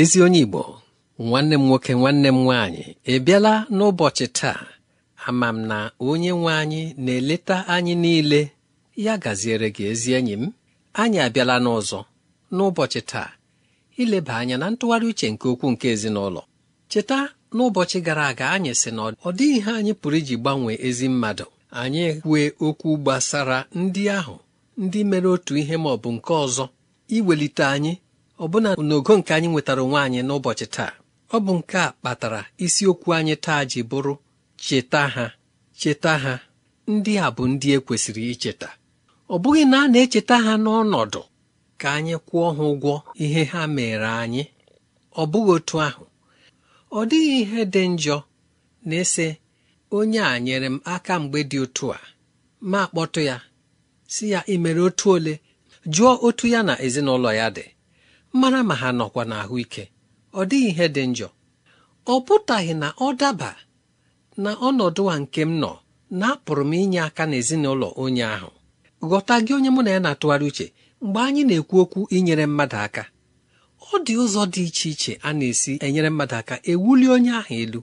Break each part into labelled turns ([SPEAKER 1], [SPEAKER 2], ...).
[SPEAKER 1] ezi onye igbo nwanne m nwoke nwanne m nwaanyị ịbịala n'ụbọchị taa ama m na onye nwe anyị na-eleta anyị niile ya gaziere gị ezi enyi m anyị abịala n'ụzọ n'ụbọchị taa ileba anya na ntụgharị uche nke okwu nke ezinụlọ cheta n'ụbọchị gara aga anyị sị na ọ dịghị ihe anyị pụrụ iji gbanwee ezi mmadụ anyị kwue okwu gbasara ndị ahụ ndị mere otu ihe ma ọ bụ nke ọzọ iwelite anyị ọbụna n'ogo nke anyị nwetara onwe anyị n'ụbọchị taa ọ bụ nke a kpatara isiokwu anyị taa ji bụrụ cheta ha cheta ha ndị a bụ ndị e kwesịrị icheta ọ bụghị na a na-echeta ha n'ọnọdụ ka anyị kwụọ ha ụgwọ ihe ha mere anyị ọ bụghị otu ahụ ọ dịghị ihe dị njọ na-ese onye a nyere m aka mgbe dị otu a ma kpọtụ ya si ya imere otu ole jụọ otu ya na ezinụlọ ya dị mara ma ha nọkwa n'ahụike ọ dịghị ihe dị njọ ọ pụtaghị na ọ daba na ọnọdụ a nke m nọ na apụrụ m inye aka n'ezinụlọ onye ahụ ghọta gị onye mụ na ya na-atụgharị uche mgbe anyị na-ekwu okwu inyere mmadụ aka ọ dị ụzọ dị iche iche a na-esi enyere mmadụ aka ewuli onye ahụ elu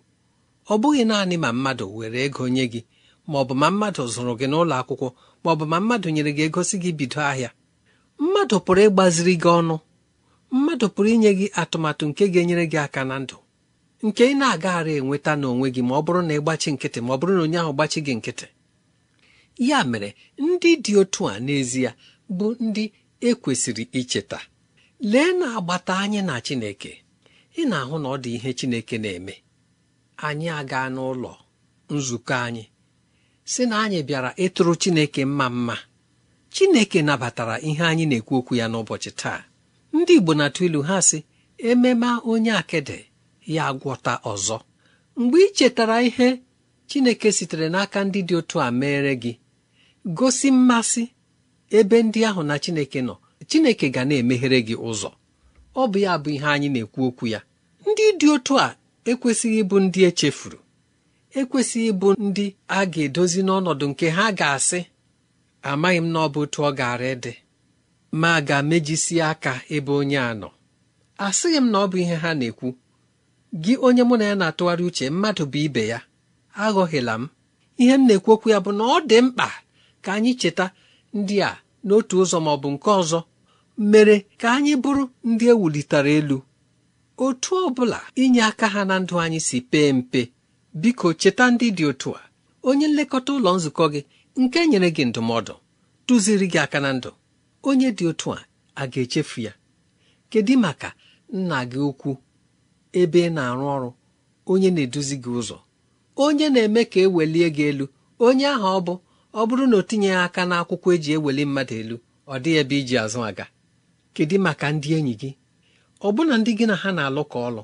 [SPEAKER 1] ọ bụghị naanị ma mmadụ were ego nye gị ma ọ bụ ma mmadụ zụrụ gị n'ụlọ akwụkwọ ma ọ bụ ma mmadụ nyere gị egosi gị bido ahịa mmadụ pụrụ ịgbaziri gị ọnụ mmadụ pụrụ inye gị atụmatụ nke ga-enyere gị aka na ndụ nke ị na-agaghara enweta n'onwe gị ma ọ bụrụ na ị gbachi nkịtị ma ọ bụrụ na onye ahụ gbachi gị nkịtị ya mere ndị dị otu a n'ezie bụ ndị ekwesịrị icheta lee na agbata anyị na Chineke ị na-ahụ na ọ dị ihe Chineke na-eme anyị aga n'ụlọ nzukọ anyị si na anyị bịara ịtụrụ Chineke mma mma Chineke nabatara ihe anyị na-ekwu okwu ya n'ụbọchị taa ndị igbo na-atụ ilu ha sị ememe onye akịdị ya agwọta ọzọ mgbe ị chetara ihe chineke sitere n'aka ndị dị otu a meere gị gosi mmasị ebe ndị ahụ na chineke nọ chineke ga na-emeghere gị ụzọ ọ bụ ya bụ ihe anyị na-ekwu okwu ya ndị dị otu a ekwesịghị ịbụ ndị echefuru ekwesịghị ịbụ ndị a ga-edozi n'ọnọdụ nke ha ga-asị amaghị m na ọ bụ otu ọ gaara ịdị ma ga-emejisi aka ebe onye a nọ asịghị m na ọ bụ ihe ha na-ekwu gị onye mụ na ya na-atụgharị uche mmadụ bụ ibe ya aghọghịla m ihe m na-ekwu okwu ya bụ na ọ dị mkpa ka anyị cheta ndị a n'otu ụzọ ma ọ bụ nke ọzọ mere ka anyị bụrụ ndị ewulitere elu otu ọ bụla inye aka ha na ndụ anyị si pee mpe biko cheta ndị dị otu a onye nlekọta ụlọ nzukọ gị nke nyere gị ndụmọdụ tụziri gị aka na ndụ onye dị otu a a ga-echefu ya kedu maka nna gị ukwu ebe ị na-arụ ọrụ onye na-eduzi gị ụzọ onye na-eme ka ewelie gị elu onye ahụ ọ bụ ọ bụrụ na o tinyeghị aka n'akwụkwọ eji eweli mmadụ elu ọ dịghị ebe iji azụ aga kedu maka ndị enyi gị ọbụna ndị gị na ha na-alụ ka ọlụ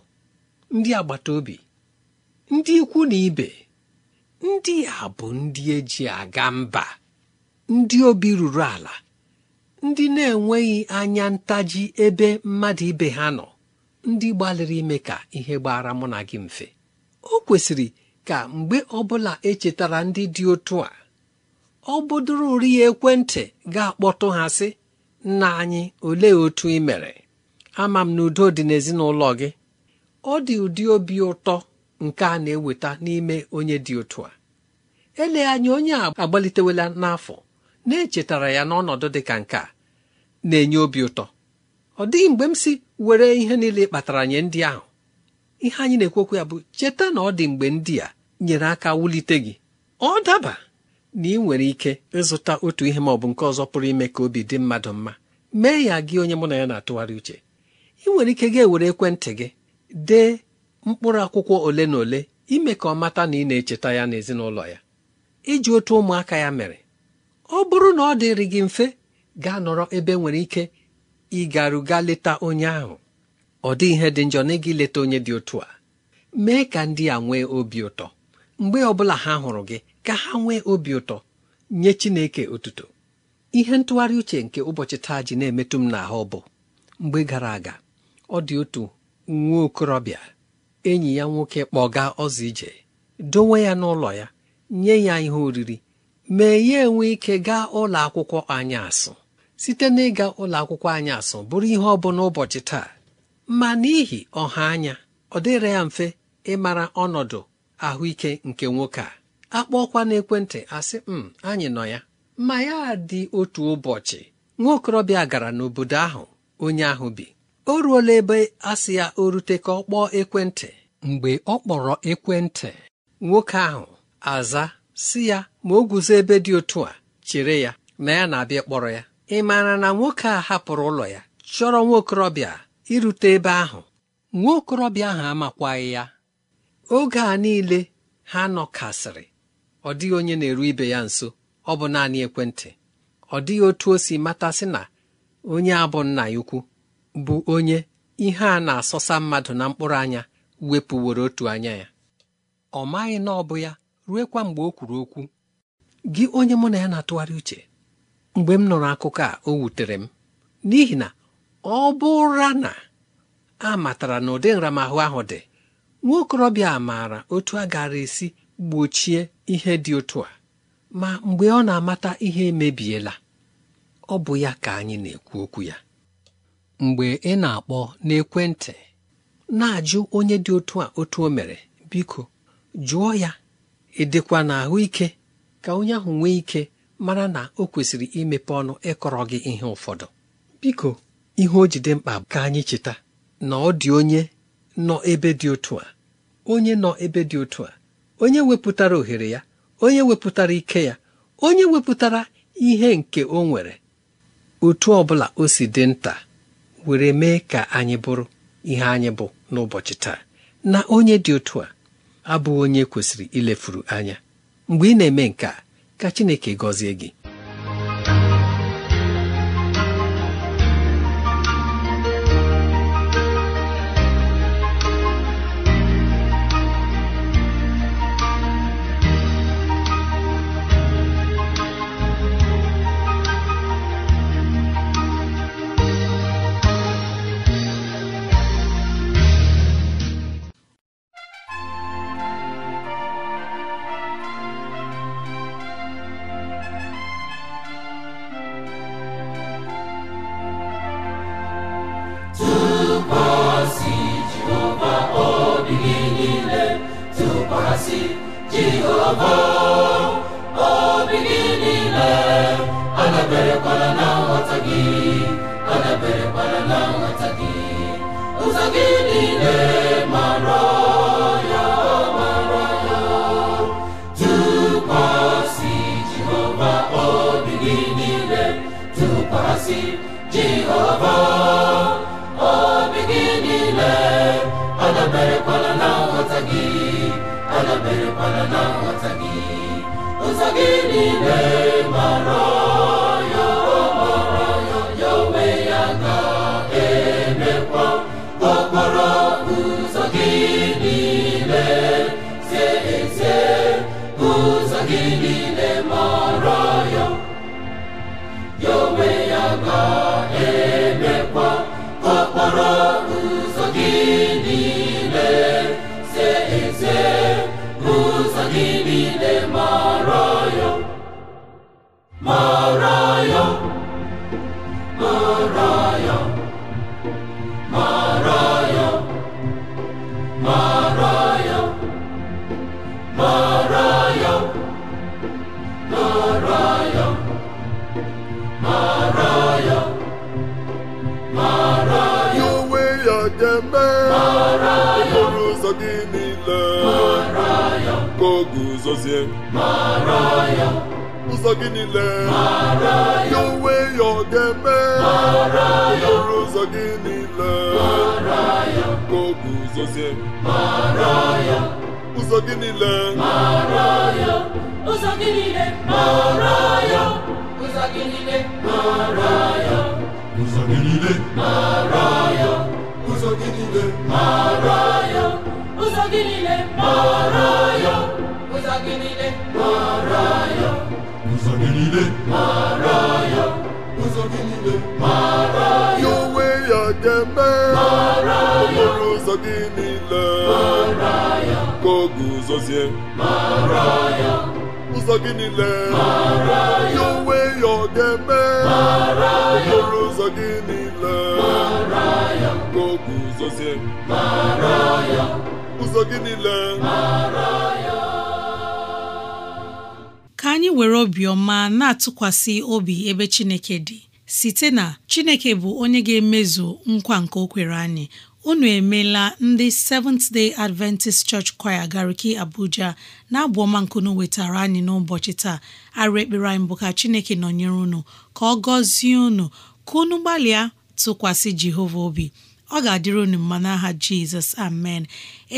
[SPEAKER 1] ndị agbata obi ndị ikwu na ibe ndị a bụ ndị eji aga mba ndị obi ruru ala ndị na-enweghị anya ntaji ebe mmadụ ibe ha nọ ndị gbalịrị ime ka ihe gbara mụ na gị mfe o kwesịrị ka mgbe ọbụla echetara ndị dị otu a ọ ya ekwentị ga-akpọtụ ha sị nna anyị olee otu ị mere ama m na udo dị n'ezinụlọ gị ọ dị ụdị obi ụtọ nke a na-eweta n'ime onye dị otu a eleghị anya onye a agbalitewela n'afọ na-echetara ya n'ọnọdụ dị ka nke a na-enye obi ụtọ ọ dịghị mgbe m si were ihe niile kpatara nye ndị ahụ ihe anyị na-ekwekwa ya bụ cheta na ọ dị mgbe ndị a nyere aka wulite gị ọ daba na ị nwere ike ịzụta otu ihe ma ọ bụ nke ọzọ pụrụ ime ka obi dị mmadụ mma mee ya gị onye mụ na ya na-atụgharị uche ị nwere ike ga-ewere ekwentị gị dee mkpụrụ akwụkwọ ole na ole ime ka ọ mata na ị na-echeta ya n'ezinụlọ ya iji otu ụmụaka ya mere ọ bụrụ na ọ dịrị gị mfe gaa nọrọ ebe nwere ike ịgaruga leta onye ahụ ọ dị ihe dị njọ n'ịga ileta onye dị otu a mee ka ndị a nwee obi ụtọ mgbe ọbụla ha hụrụ gị ka ha nwee obi ụtọ nye Chineke otuto ihe ntụgharị uche nke ụbọchị taa ji na-emetụ m n'ahụ bụ mgbe gara aga ọ dị otu nwa okorobịa enyi ya nwoke kpọga ọzọ ije dowe ya n'ụlọ ya nye ya ihe oriri mee ya enwe ike gaa ụlọ akwụkwọ asụ site n'ịga ụlọ akwụkwọ asụ bụrụ ihe ọ bụla ụbọchị taa ma n'ihi ọha anya ọ dịrị ya mfe ịmara ọnọdụ ahụike nke nwoke a akpọọkwa n'ekwentị asị m hmm, anyị nọ ya ma ya dị otu ụbọchị nwa okorobịa gara n'obodo ahụ onye ahụ bi o ruola ebe asị ya o rute ka ọ kpọọ ekwentị mgbe ọ kpọrọ ekwentị nwoke ahụ aza si ya ma o guzo ebe dị otu a chere ya na ya na-abịa kpọrọ ya ị maara na nwoke a hapụrụ ụlọ ya chọrọ nwa okorobịa irute ebe ahụ nwa okorobịa ahụ amakwaghị ya oge a niile ha nọkasịrị ọ dịghị onye na-eru ibe ya nso ọ bụ naanị ekwentị ọ dịghị otu o si matasị na onye a bụ nna ya ukwu bụ onye ihe a na-asọsa mmadụ na mkpụrụ anya wepụworo otu anya ya ọ maghị na ọ bụ ya kwa mgbe o kwuru okwu gị onye mụ na ya na-atụgharị uche mgbe m nọrọ akụkọ a o wutere m n'ihi na ọ bụra na a matara na ụdị nramahụ ahụ dị nwa okorobịa a maara otu a gara esi gbochie ihe dị otu a ma mgbe ọ na-amata ihe emebiela ọ bụ ya ka anyị na-ekwu okwu ya mgbe ị na-akpọ n'ekwentị na-ajụ onye dị otu a otu o mere biko jụọ ya ịdịkwa ahụike ka onye ahụ nwee ike mara na o kwesịrị imepe ọnụ ịkọrọ gị ihe ụfọdụ biko ihe o jide mkpa ka anyị cheta na ọ dị onye nọ ebe dị otu a onye nọ ebe dị otu a onye wepụtara ohere ya onye wepụtara ike ya onye wepụtara ihe nke o nwere otu ọ bụla o si dị nta were mee ka anyị bụrụ ihe anyị bụ n'ụbọchị taa na onye dị otu a abụghị onye kwesịrị ilefuru anya mgbe ị na-eme nke a ka Chineke gọzie gị
[SPEAKER 2] obi gị niile na nghọta gị adaberekwala na nghọta gị ụzọ gị niile ụzọ gị niile mara ya ụzọ gị niile mara ya onwe ya ga-eme mara ya okporo ụzọ gị niile mara
[SPEAKER 3] ya ka
[SPEAKER 2] mara ya ụzọ gị niile mara ya onwe ya ọ ga mara ya okporo ụzọ gị niile mara ya ka mara ya ụzọ gị niile mara ya
[SPEAKER 3] anyị were obiọma na-atụkwasị obi ebe Chineke dị site na Chineke bụ onye ga-emezu nkwa nke o kwere anyị unu emeela ndị Seventh Day Adventist Church Choir Gariki Abuja na-abụ ọma nkunu wetara anyị n'ụbọchị taa arụ ekpere anyị bụ ka Chineke nọnyere unu ka ọ gọzie unu ka unu gbalịa tụkwasị Jehova obi ọ ga-adịrị unu mma n'aha jizọs amen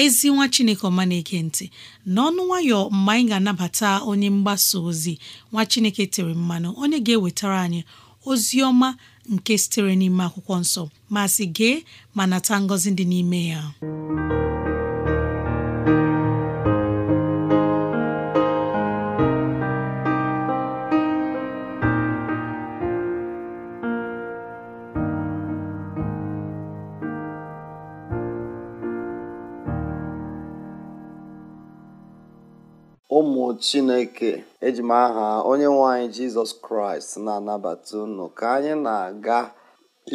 [SPEAKER 3] ezi nwa chineke ọma na-eke ntị n'ọnụ nwayọ mgbe anyị ga-anabata onye mgbasa ozi nwa chineke tere mmanụ onye ga-ewetara anyị ozi ọma nke sitere n'ime akwụkwọ nsọ ma sị gee ma nata ngọzi dị n'ime ya
[SPEAKER 2] chineke eji m aha onye nwe anyị jizọs kraịst na-anabata unu ka anyị na-aga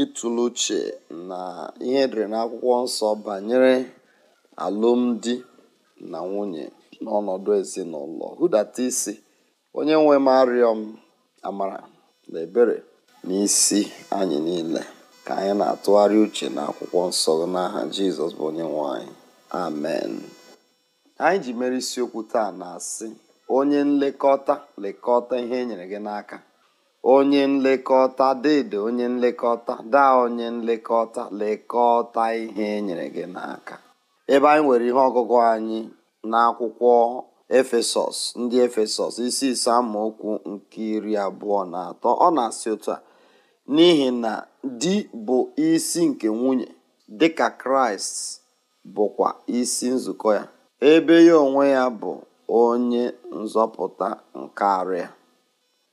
[SPEAKER 2] ịtụle uche na ihe na n'akwụkwọ nsọ banyere alụmdi na nwunye n'ọnọdụ ezinụlọ hụdata isi onye nwe m arịọ m amara na ebere n'isi anyị niile ka anyị na-atụgharị uche na akwụkwọ nsọ n'aha jizọs bụ onye nwanyị. amen anyị ji mere isiokwu taa na-asị onye nlekọta lekọta ihe e nyere gị n'aka onye nlekọta dede onye nlekọta daa onye nlekọta lekọta ihe e nyere gị n'aka ebe anyị nwere ihe ọgụgụ anyị n'akwụkwọ efesọs ndị efesọs isi ise amaokwu nke iri abụọ na atọ ọ na-asị otu a n'ihi na di bụ isi nke nwunye dịka kraịst bụkwa isi nzukọ ya ebe ya onwe ya bụ onye nzọpụta nke arịa,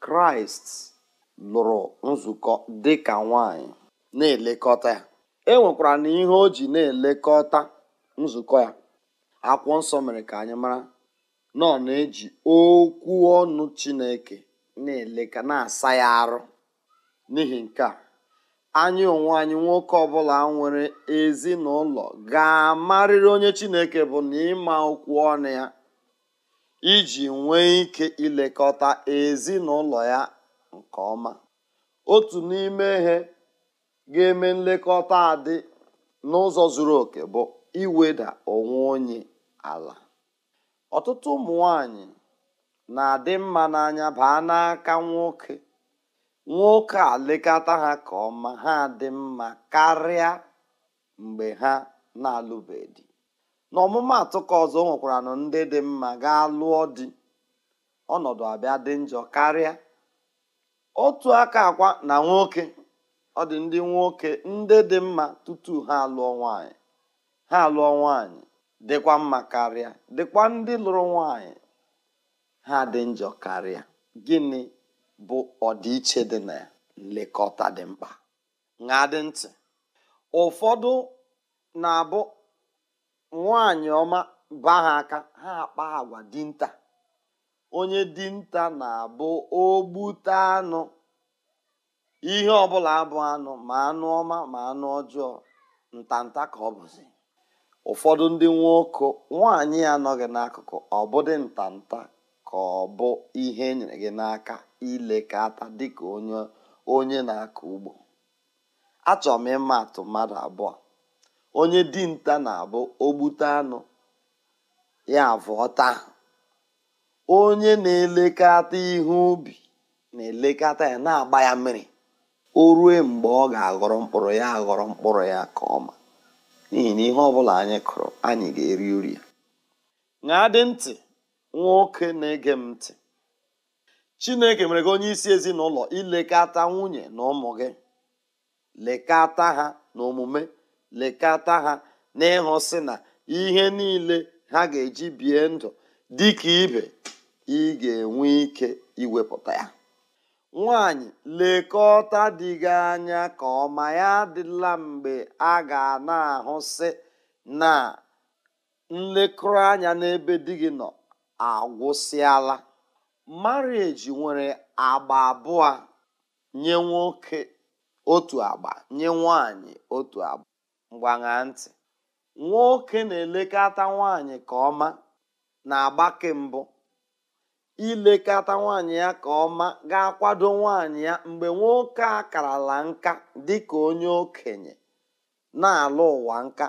[SPEAKER 2] Kraịst lụrụ nzukọ dị ka nwanyị na-elekọta ya. E nwekwara na ihe o ji na-elekọta nzukọ ya. Akwụkwọ nsọ mere ka anyị mara na ọ na-eji okwu ọnụ Chineke na-eleka na-asa ya arụ n'ihi nke a anyị onwe anyị nwoke ọbụla nwere ezinụlọ ga-amarịrị onye Chineke bụ na ịma okwu ọnụ ya iji nwee ike ilekọta ezinụlọ ya nke ọma otu n'ime ihe ga-eme nlekọta adị n'ụzọ zuru oke bụ iweda onwe onye ala ọtụtụ ụmụ nwanyị na-adị mma n'anya baa n'aka nwoke nwoke a lekọta ha ka ọma ha dị mma karịa mgbe ha na-alụbeghị n'ọmụmaatụ ka ọzọ o nwekwara na ndị dị mma gaa lụọ di ọnọdụ abịa dị njọ karịa otu aka akwa na nwoke ọ dị ndị nwoke ndị dị mma tutu ha alụọ nwanyị ha alụọ nwanyị dịkwa mma karịa dịkwa ndị lụrụ nwanyị ha dị njọ karịa gịnị bụ ọdịiche dị na nlekọta dị mkpa ṅaa dị ntị ụfọdụ na-abụ nwaanyị ọma baa ha aka ha akpa agwa dinta onye dinta na-abụ ogbute anụ ihe ọbụla abụ anụ ma anụ ọma ma anụ ọjọọ ntanta ka ọ bụzi ụfọdụ ndị nwoke nwaanyị anọghị n'akụkụ ọbụdị ntanta ka ọ bụ ihe enyere gị n'aka ilekọta dịka onye onye na-akọ ugbo achọrọ m ịma atụ mmadụ abụọ onye dinta na-abụ ogbute anụ ya avọta onye na elekata ihe ubi na-elekọta ya na-agba ya mmiri o rue mgbe ọ ga-aghọrọ mkpụrụ ya aghọrọ mkpụrụ ya ka ọma n'ihi na ihe ọbụla anyị kụrụ anyị ga-eri uri ya ṅaa dị ntị nwoke na-ege m ntị chineke mere gị onye isi ezinụlọ ilekọta nwunye na ụmụ gị lekọta ha na omume lekọta ha n'ịhụsị na ihe niile ha ga-eji bie ndụ dị ibe ị ga-enwe ike iwepụta ya nwanyị lekọta dị gị anya ka ọma ya adịla mgbe a ga na-ahụsị na nlekọta anya n'ebe di gị nọ agwụsịala marieji nwere agba abụọ nye nwoke otu agba nye nwanyị otu agba mgbaṅa ntị nwoke na-elekọta nwaanyị ka ọma na-agbake mbụ ilekọta nwanyị ya ka ọma ga-akwado nwanyị ya mgbe nwoke a karala nka dị ka onye okenye na-alụ ụwa nka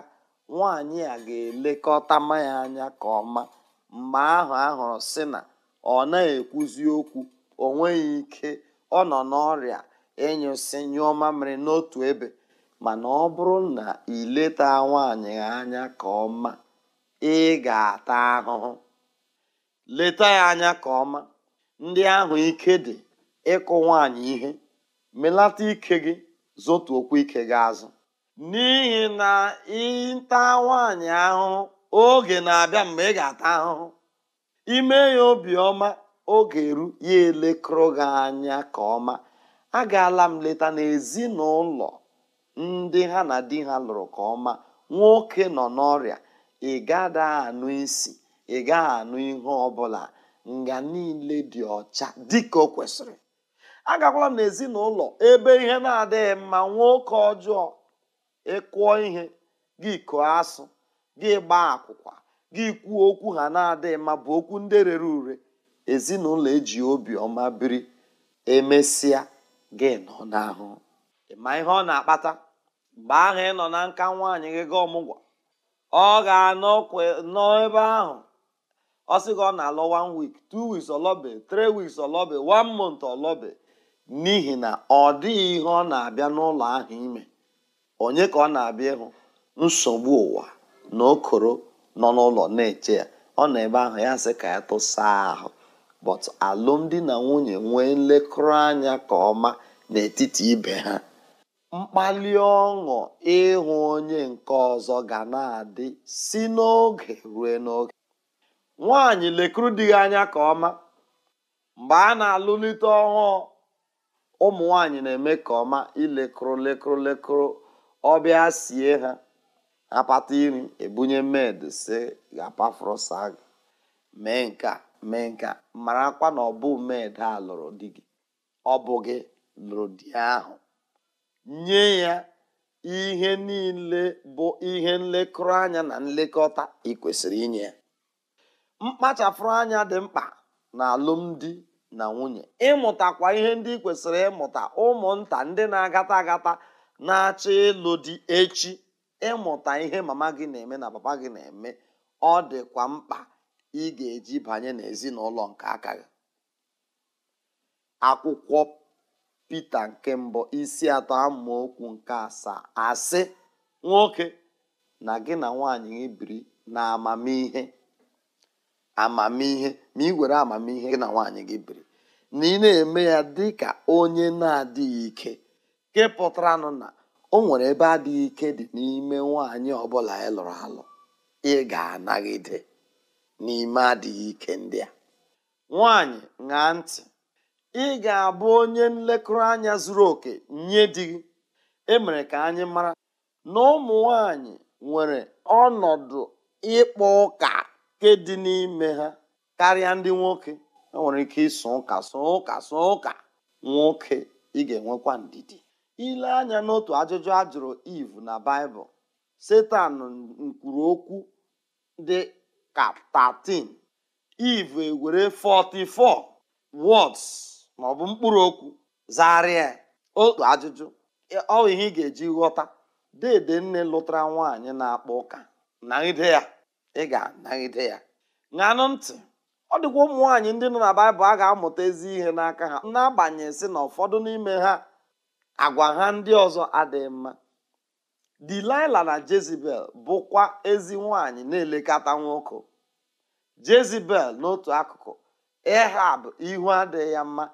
[SPEAKER 2] nwanyị a ga-elekọta ya anya ka ọma mgbe ahụ ahụrụ sị na ọ na-ekwuzi okwu o nweghị ike ọ nọ n'ọrịa ịnyụsị nyụọ mamịrị n'otu ebe mana ọ bụrụ na ị leta nwaanyị anya ka ọma ị ga-ata ahụhụ leta ya anya ka ọma ndị ahụ ike dị ịkụ nwaanyị ihe melata ike gị okwu ike gị azụ n'ihi na ịta nwaanyị ahụhụ oge na-abịa mgbe ị ga-ata ahụhụ ime ya obiọma oge eru ya elekọrọ gị anya ka ọma agaala m leta n'ezinụlọ ndị ha na di ha lụrụ ka ọma nwoke nọ n'ọrịa ị gada anụ isi ị anụ ihe ọbụla nga niile dị ọcha dịka o kwesịrị agakwala ezinụlọ ebe ihe na-adịghị mma nwoke ọjọọ ịkụọ ihe gị kụọ asụ gị gbaa akwụkwa gị kwuo okwu ha na-adịghị mma bụ okwu ndị rere ure ezinụlọ eji obi ọma biri emesịa gị nọ n'ahụ ịma ihe ọ na-akpata mgbe ahụ ị nọ na nka nwaanyị gị ga ọmụgwọ ọ ga-anọ n'ebe ahụ ọ sị gị ọ na-alọ one week two weeks ọlọbe three weeks ọlọbe one month ọlọbe n'ihi na ọ dịghị ihe ọ na-abịa n'ụlọ ahụ ime onye ka ọ na-abịa ịhụ nsogbu ụwa na okoro nọ n'ụlọ na-eche ya ọ nọ ebe ahụ ya sị ka ya tụsa ahụ but alụmdi na nwunye nwee nlekọta anya ka ọma n'etiti ibe ha mkpali ọṅụ ịhụ onye nke ọzọ ga na-adị si n'oge ruo n'oge nwaanyị lekuru di gị anya ka ọma mgbe a na-alụlite ọhụụ ụmụ nwanyị na-eme ka ọma ilekụrụ lekụrụ lekụrụ ọbịa sie ha apata iri ebunye med si gapafrosa gị mee nka mee nka marakwa na ọ bụ med a lụrụ di gị ọ bụ gị lụrụ di ahụ nye ya ihe niile bụ ihe nlekọrọ anya na nlekọta ị inye ya mkpachapụrụ anya dị mkpa na alụmdi na nwunye ịmụtakwa ihe ndị kwesịrị ịmụta ụmụnta ndị na-agata agata agata na acha ịlụ dị echi ịmụta ihe mama gị na-eme na papa gị na-eme ọ dịkwa mkpa ị ga-eji banye n'ezinụlọ nke aka gị akwụkwọ pita nke mbụ isi atọ okwu nke asaa asị nwoke na gị na nwaanyị gị biri na amamihe amamihe ma ị were amamihe gị na nwaanyị gị biri na ị na-eme ya dị ka onye na-adịghị ike nke pụtaranụ na o nwere ebe adịghị ike dị n'ime nwaanyị ọbụla ị lụrụ alụ ị ga-anagide n'ime adịghị ike ndị a nwaanyị ṅaa ntị ị ga-abụ onye nlekọta anya zuru oke nye di gị emere ka anyị mara na ụmụ nwanyị nwere ọnọdụ ịkpọ ụka nke dị n'ime ha karịa ndị nwoke e nwere ike ịsụ ụka sụ ụka sụ ụka nwoke ị ga-enwekwa ndidi ile anya n'otu ajụjụ a jụrụ iv na baịbụl setan nkwuru okwu dị ka 13 iv ewere 44 wọds. ma ọ bụ mkpụrụ okwu zagharịa ya otu ajụjụ ọ ihe ị ga-eji ghọta dede nne lụtara nwaanyị na akpụ ụka naghide ya ị ga-anaghide ya ṅanụ ntị ọ dịkwa ụmụ nwaanyị ndị nọ na baịbụl a ga-amụta ezi ihe n'aka ha n'agbanyeghị sị na ụfọdụ n'ime ha agwa ha ndị ọzọ adịghị mma Dilaịla na Jezibel bụkwa ezi nwaanyị na-elekọta nwoke Jezibel n'otu akụkụ Ehab ihu adịghị ya mma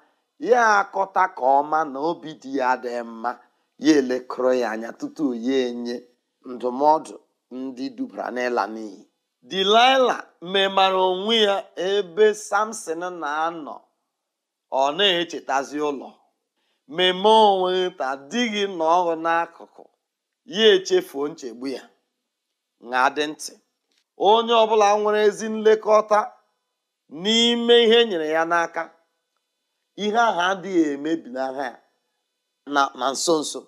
[SPEAKER 2] ya akọta ka ọma na obi dị ya dị mma ya elekọrọ ya anya tutu ya enye ndụmọdụ ndị dubara n'ịla n'iyi Dilaịla memara onwe ya ebe Samson na-anọ ọ na-echetazi ụlọ mmemme onwe ta dịghị na n'akụkụ ya echefuo nchegbu ya na-adị ntị onye ọbụla nwere ezi nlekọta n'ime ihe nyere ya n'aka ihe ahụ adịghị emebi n'agha na nso nso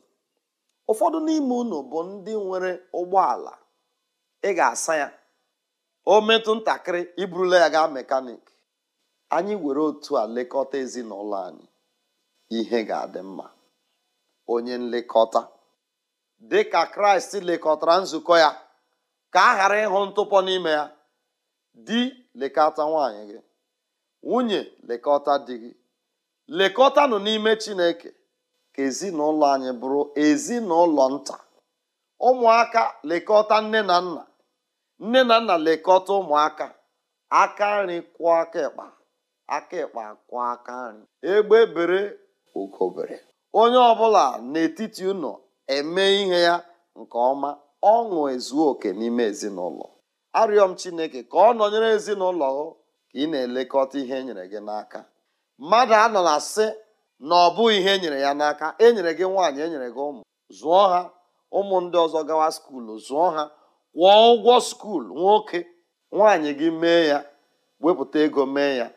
[SPEAKER 2] ụfọdụ n'ime unu bụ ndị nwere ụgbọala ị ga-asa ya o metụ ntakịrị iburula ya gaa mekanik anyị were otu a lekọta ezinụlọ anyị ihe ga-adị mma onye nlekọta dị ka kraịst lekọtara nzukọ ya ka a ghara ịhụ ntụpọ n'ime ya di lekọta nwanyị gị nwunye lekọta di gị lekọtanụ n'ime chineke ka ezinụlọ anyị bụrụ ezinụlọ nta ụmụaka lekọta nne na nna nne na nna lekọta ụmụaka aka nri kwụọ aka ịkpa aka ịkpa kwụọ aka nri egbe bere ugobere onye ọbụla n'etiti ụnọ eme ihe ya nke ọma ọṅụ ezuo oke n'ime ezinụlọ arịọ m chineke ka ọ nọnyere ezinụlọ ka ị na-elekọta ihe e nyere gị n'aka mmadụ anọ na asị na ọ bụghị ihe enyere ya n'aka enyere gị nwaanyị enyere gị ụmụ zụọ ha ụmụ ndị ọzọ gawa skuulu zụọ ha kwụọ ụgwọ skuulu nwoke nwaanyị gị mee ya wepụta ego mee ya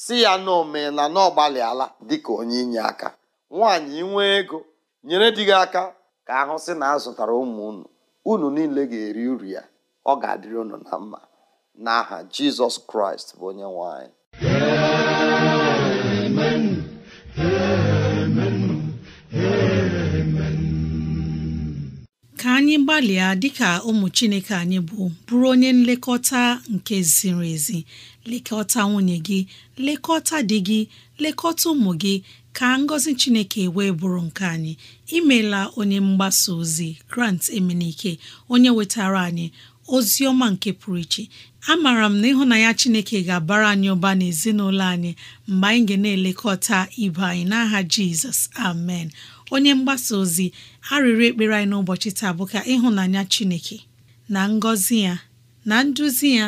[SPEAKER 2] si ya na omee na ọgbalịala dịka onye inye aka nwaanyị nwee ego nyere di gị aka ka ahụ sị na a zụtara ụmụ unu unu niile ga-eri uru ya ọ ga-adịrị unu na mma n'aha Jizọs Kraịst bụ onye nwanyị. anyị
[SPEAKER 3] anyị gbalịa dịka ụmụ Chineke anyị bụ bụrụ onye nlekọta nke ziri ezi lekọta nwunye gị lekọta dị gị lekọta ụmụ gị ka ngọzi Chineke wee bụrụ nke anyị imela onye mgbasa ozi Grant Emenike onye wetara anyị ozi ọma nke pụrụ iche mara m na ịhụnanya Chineke ga-abara anyị ụba n'ezinụlọ anyị mgbe anyị ga na-elekọta ibe anyị n'aha Jizọs amen onye mgbasa ozi arịrịọ ekpere anyị n'ụbọchị taa bụ ka ịhụnanya Chineke na ngọzi ya na nduzi ya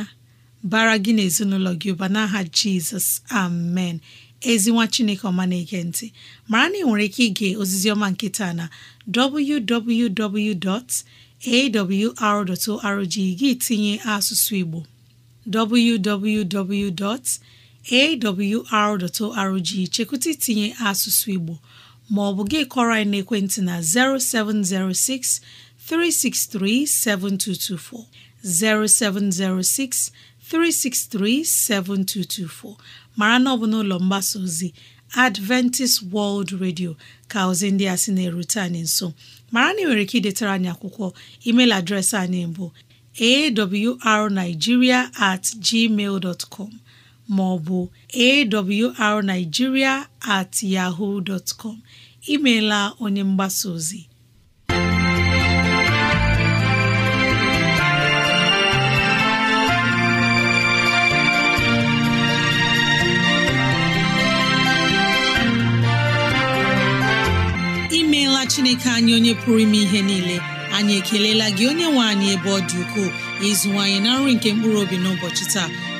[SPEAKER 3] bara gị na ezinụlọ gị ụba n'aha Jizọs amen ezinwa Chineke ọma na-ege ntị mara na ị nwere ike ige ozizi ọma nke na www.awr.org gị tinye asụsụ Igbo www.awr.org chekwụta itinye asụsụ Igbo Ma maọbụ gị kọrọ anyị n'ekwentị na 0706 363 7224, 0706 363 7224. mara na ọ bụ n'ụlọ mgbasa ozi Adventist World Radio ka ozi ndị a sị na-erute anyị nso mara na ị nwere ike idetara anyị akwụkwọ email adreesị anyị bụ awrnigeria at gmail com ma ọ bụ at yahoo imeela onye mgbasa ozi imeela chineke anyị onye pụrụ ime ihe niile anyị ekelela gị onye nwe anyị ebe ọ dị ukwuu ịzụwanyị na nri nke mkpụrụ obi n'ụbọchị taa